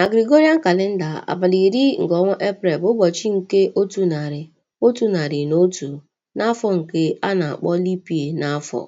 Na Gregorian kalenda, abalị iri nke ọnwa Eprel bụ ụbọchị nke otu narị otu narị na otu, n'afọ nke a na-akpọ lipie n'afọ.